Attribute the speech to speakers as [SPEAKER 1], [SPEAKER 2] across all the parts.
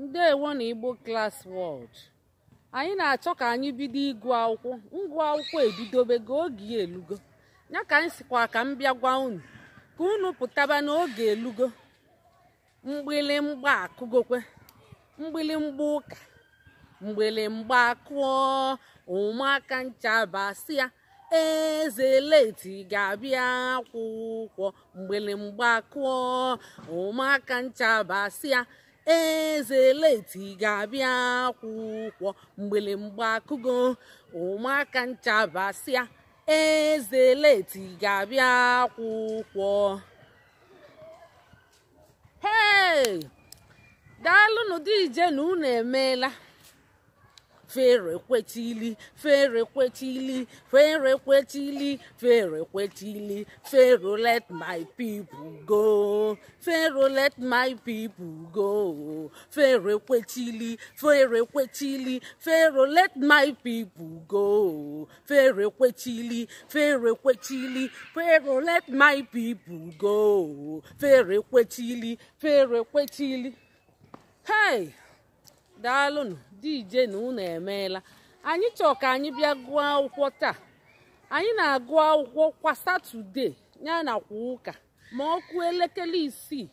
[SPEAKER 1] ndewo na igbo class world anyị na-achọ ka anyị bido ịgụ akwụkwọ ngụ akwụkwọ ebidobe ga oge elugo ya ka anyị sikwa ka m bịa gwa unu ka unu pụtaba n'oge elugo mgbịlịmgba akụgokwe mgbịlịmgba ụka mgbịlịmgba akụọ ụmụaka nchabasị ya eze leti ga-abịa akwụkwọ mgbịlịmgba akụọ ụmụaka nchabasị ya eze leti ga-abịa akwụkwọ mgbe akụgo ụmụaka nchabasịa eze leti ga-abịa akwụkwọ hei daalụnụ dị ije na unu emeela fèrèkwetili fèrèkwetili fèrèkwetili fèrèkwetili pharaoh let my people go pharaoh let my people go fèrèkwetili fèrèkwetili pharaoh let my people go fèrèkwetili fèrèkwetili pharaoh let my people go fèrèkwetili fèrèkwetili hey daalụnụ dj na unu emeela anyị chọrọ ka anyị bịa gụọ akwụkwọ taa anyị na-agụ akwụkwọ kwa satọde ya na kwa ụka ma ọ elekere isii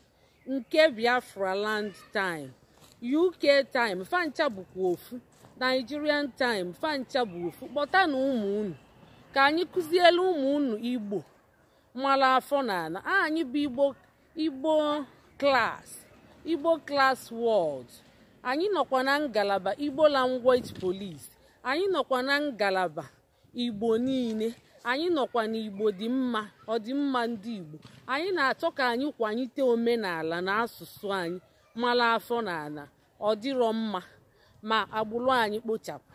[SPEAKER 1] nke biafra land time uk time fancha bụkwa ofu nigerian time fancha bụ ofu kpọta na ụmụ unu ka anyị kụziele ụmụ unu igbo mara afọ na ana ah, anyị bụ igbo igbo klas igbo klas wọld anyị nọkwa na ngalaba igbo language police anyị nọkwa na ngalaba igbo niile anyị nọkwa igbo dị mma ọdịmma ndị igbo anyị na-achọ ka anyị kwanyite omenala na asụsụ anyị mara afọ na ala ọ dịrọ mma ma agbụrụ anyị kpochapụ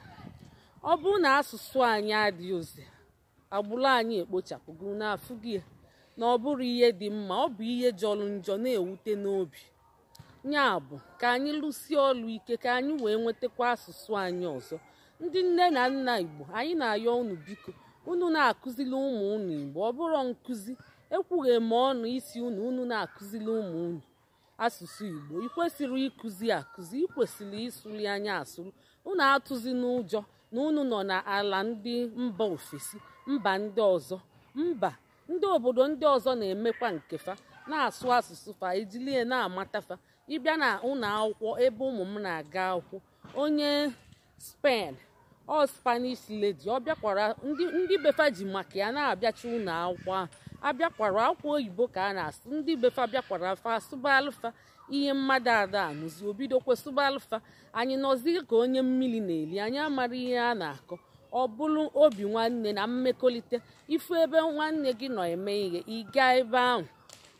[SPEAKER 1] ọ bụrụ na asụsụ anyị adịghị ozi agbụrụ anyị ekpochapụgo na afụghị na ọ bụrụ ihe dị mma ọ bụ ihe jọrọ njọ na-ewute n'obi ya bụ ka anyị lụsie ọlụ ike ka anyị wee nwetakwa asụsụ anyị ọzọ ndị nne na nna igbo anyị na-ayọ unu biko unu na-akụzili ụmụ unu igbo ọ bụrọ nkụzi ekwughị m ọnụ isi unu unu na-akụzili ụmụ unu asụsụ igbo ikwesịrị ịkụzi akụzi ikwesịrị ịsụli anya asụrụ unu atụzi n'ụjọ na unu nọ n'ala ndị mba ofesi mba ndị ọzọ mba ndị obodo ndị ọzọ na-emekwa nkefa na-asụ asụsụ fa ejilie na-amatafa ịbịa na ụlọ akwụkwọ ebe ụmụ m na-aga akwụkwọ onye spen ọ spanish lady ọ bịakwara ndị befa ji maka ya na abịacha ụlọ akwụkwọ ahụ abịakwara akwụkwọ oyibo ka a na-asụ ndị befa bịakwara fa sụba alfa ihe mmadụ ada anụzi obidokwe sụba anyị nọzi ka onye mmiri na-eli anyị amara ihe a na-akọ ọ bụrụ obi nwanne na mmekọlịta ifu ebe nwanne gị nọ eme ihe ịga ebe ahụ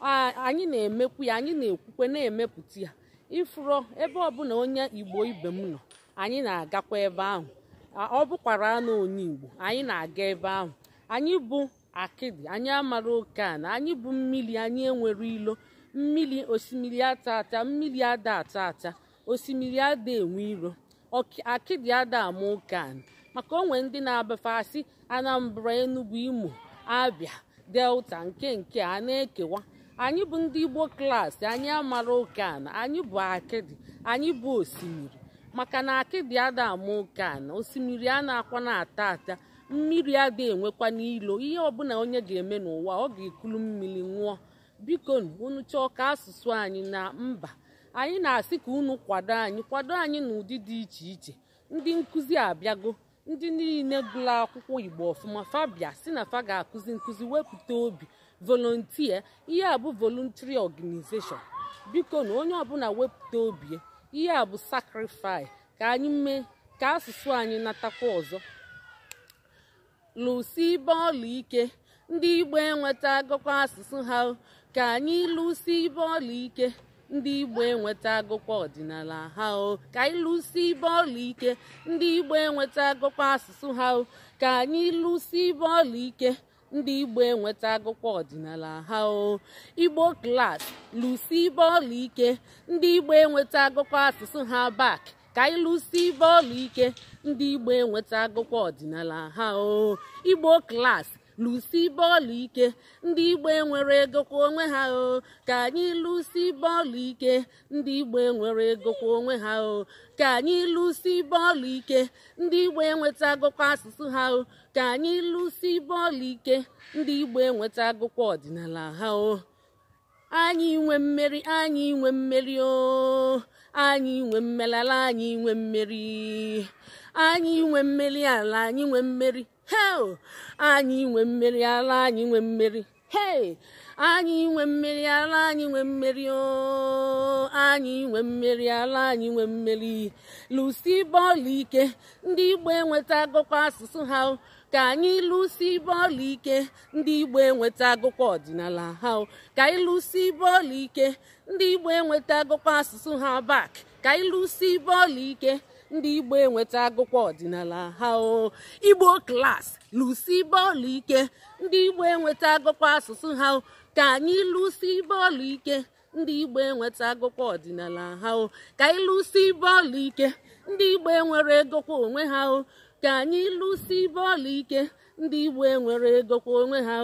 [SPEAKER 1] anyị na-emekwu ya anyị na-ekwukwe na-emepụta ya ifuro ebe ọbụla onye igbo ibe m nọ anyị na-agakwa ebe ahụ ọ bụkwara anụ onye igbo anyị na-aga ebe ahụ anyị bụ akịdị anyị amara oke na anyị bụ mmiri anyị enwere ilo mmiri osimiri ata ata mmiri ada ata ata osimiri ada enwe iro akịdị ada ama oke maka onwe ndị na abafasị anambra enugwu imo abịa delta nke nke a na-ekewa anyị bụ ndị Igbo klaasị anyị amara oke ana anyị bụ akịdị anyị bụ osimiri maka na akịdị ada ama oke ana osimiri a na-akwa na-ata ata mmiri ada enwekwa n'ilo ihe ọbụla onye ga-eme n'ụwa ọ ga-ekulu mmiri ṅụọ biko unu chọọ ka asụsụ anyị na mba anyị na-asị ka unu kwado anyị kwado anyị n'ụdị dị iche iche ndị nkụzi abịago ndị niile gụrụ akwụkwọ Igbo ọfụma fabia si na fa ga-akụzi nkụzi wepụta obi volunteer ihe a bụ voluntary organization biko na onye ọbụla wepụta obi ihe a bụ sacrifice ka anyị mee ka asụsụ anyị natakwa ọzọ Lụsị ibe ọla ike ndị igbo enweta agụkwa asụsụ ha ka anyị lụsị ibe ọla ike ndị igbo enweta agụkwa ọdịnala ha ka anyị lụsi ibe ọla ike ndị igbo enweta agụkwa asụsụ ha ka anyị lụsi ibe ọla ike ndị igbo enweta agụkwa ọdịnala ha o igbo klas lusi bọọlụ ike ndị igbo enweta agụkwa asụsụ ha bak ka anyị lụsi bọọlụ ike ndị igbo enweta agụkwa ọdịnala ha o igbo klas lụsi bọọlụ ike ndị igbo nwere ego onwe ha o ka anyị lụsi bọọlụ ike ndị igbo nwere egokwa onwe ha o ka anyị lụsi bọọlụ ike ndị igbo enweta agụkwa asụsụ ha o ka anyị lụsi bọọlụ ike ndị igbo enweta agụkwa ọdịnala ha o anyị nwe mmeri anyị nwe mmeri o anyị nwe mmelala anyị nwe mmeri anyị nwe mmeri ala anyị nwe mmeri anyị nwe mmeri ala anyị nwe mmeri anyị nwe mmeri ala anyị nwe mmeri oh, anyị nwe mmeri ala anyị nwe mmeri lụsi bọọlụ ike ndị igbo enweta agụkọ asụsụ ha ka anyị lụsi bọọlụ ike ndị igbo enweta agụkọ ọdịnala ha ka anyị lụsi bọọlụ ike ndị igbo enweta agụkọ asụsụ ha bak ka anyị lụsi bọọlụ ike ndị igbo enweta agụkwa ọdịnala ha igbo klas lụsi bọọlụ ike ndị igbo enweta agụkwa asụsụ ha ka anyị lụsi bọọlụ ike ndị igbo enweta agụkwa ọdịnala ha ka anyị lụsi bọọlụ ike ndị igbo enwere egokwa onwe ha o ka anyị lụsi bọọlụ ike ndị igbo enwere egokwa onwe ha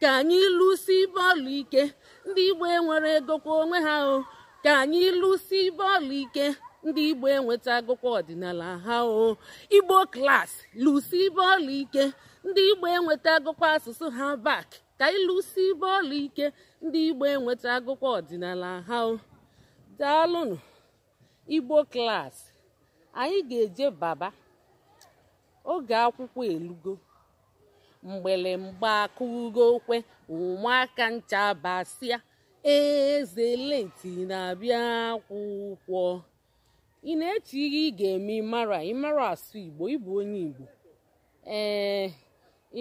[SPEAKER 1] ka anyị lụsi bọọlụ ike ndị igbo enwere egokwa onwe ha o ka anyị lụsi bọọlụ ike ndị igbo enwetagokwa ọdịnala ha o igbo klas lụsi bọọlụ ike ndị igbo enwetagokwa asụsụ ha bak ka ịlụsi ibe ike ndị igbo enwetagokwa ọdịnala ha o daalụnụ igbo klas anyị ga-eje baba oge akwụkwọ elugo mgbele mgba akụgo okwe ụmụaka ncha basịa eze lenti na-abịa akwụkwọ ị na-eche ihe ị ga-eme ịmara ịmara asụ igbo ịbụ onye igbo ee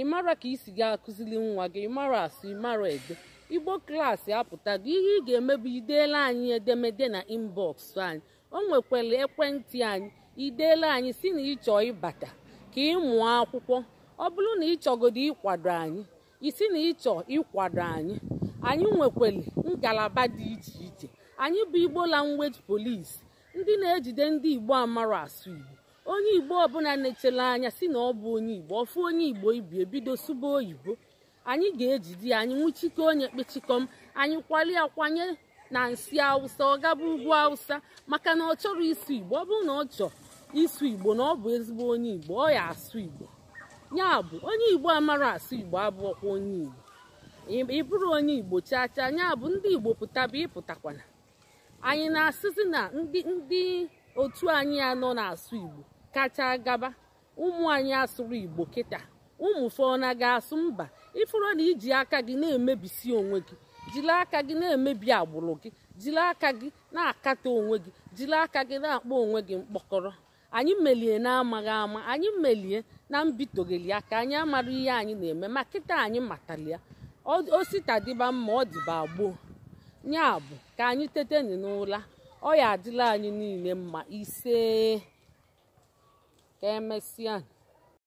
[SPEAKER 1] ịmara ka isi gị akụzili nwa gị ịmara asụ ịmara ede igbo klaasị apụtago ihe ị ga-eme bụ ideela anyị edemede na inbọks anyị o nwekwara ekwentị anyị ideela anyị si na ịchọ ịbata ka ịmụọ akwụkwọ ọ bụrụ na ịchọgodo ịkwado anyị isi na ịchọ ịkwado anyị anyị nwekwara ngalaba dị iche iche anyị bụ igbo language police ndị na-ejide ndị igbo amara asụ igbo onye igbo ọbụla na-echere anya si na ọ bụ onye igbo ọfụ onye igbo ibi ebido sụba oyibo anyị ga-ejide ya anyị nwụchike onye kpechikom anyị kwali akwanye na nsị awụsa ọ gaba ugwu awụsa maka na ọ chọrọ ịsụ igbo ọ bụrụ na ọ chọọ ịsụ igbo na ọ bụ ezigbo onye igbo ọ ya asụ igbo ya bụ onye igbo amara asụ igbo abụọkwa onye igbo ị bụrụ onye igbo chaa chaa anya bụ ndị igbo bụ ịpụtakwana anyị na-asịzi na ndị ndị otu anyị anọ na-asụ igbo kacha gaba ụmụ anyị asụrụ igbo kịta ụmụ fọna ga-asụ mba ịfụrụ na iji aka gị na-emebisi onwe gị jiri aka gị na-emebi agbụrụ gị jiri aka gị na-akata onwe gị jiri aka gị na-akpọ onwe gị mkpọkọrọ anyị melie na-amaghị ama anyị melie na mbitogeli aka anyị amara ihe anyị na-eme ma kịta anyị matalia ositadịba mma ọ dịba gboo nya bụ ka anyị teteni n'ụla ọ ya adịla anyị niile mma ise ka emesịa